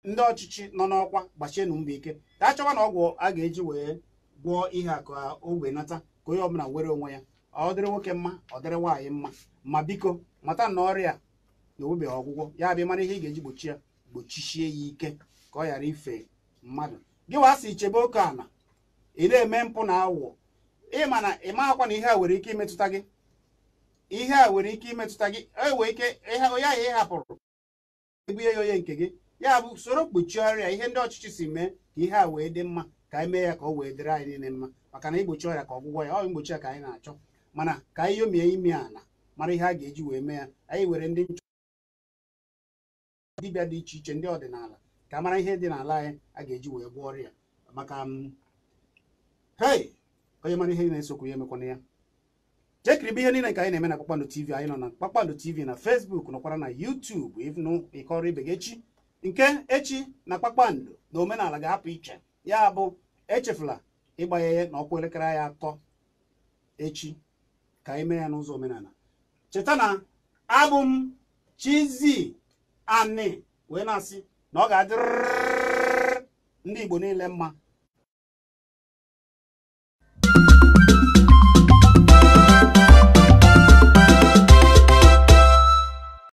ndị ọchịchị nọ n'ọkwa gbachienụ mbọ ike ka chọwa na ọgwụ a ga-eji wee gwọọ ihe a ka o wee nata ka onye ọbụla were onwe ya ọ dịrị nwoke mma ọ dịrị nwaanyị mma ma biko mata na ọrịa na onwebeghị ọgwụgwọ ya bịa mara ihe ị ga-eji gbochi ya gbochichie ya ike ka ọ ghara ife mmadụ gị wa asị chebe oke ala ị na-eme mpụ na awụọ ịma na ị akwa na ihe a nwere ike imetụta gị ihe a nwere ike imetụta gị e wee ike onye ahụ ị hapụrụ ebunye ya onye nke gị ya bụ usoro mkpuchi ọrịa ihe ndị ọchịchị si mee ka ihe a wee dị mma ka anyị mee ya ka ọ wee dịrị anyị niile mma maka na igbochi ọrịa ka ọgwụgwọ ya ọ mgbochi ya ka anyị na-achọ mana ka anyị yomie ime ala mara ihe a ga-eji wee mee ya anyị were ndị nchọ dibịa dị iche iche ndị ọdịnala ka mara ihe dị n'ala anyị a ga-eji wee gwọọ ọrịa maka um, hei onye mara ihe na-esokwu ya emekwana ya chekiribe ihe niile ka anyị na-eme na kpakpando tv anyị nọ na kpakpando tv na facebook nọkwara na youtube ịnụ ịkọrọ ibe gị echi nke echi na kpakpando na omenala ga-apụ iche ya bụ echefula ịgbanye na ọkwa elekere ya atọ echi ka ime ya n'ụzọ omenala cheta na abụ m Chizzy Ani wee na-asị na ọ ga-adịrịrị ndị Igbo niile mma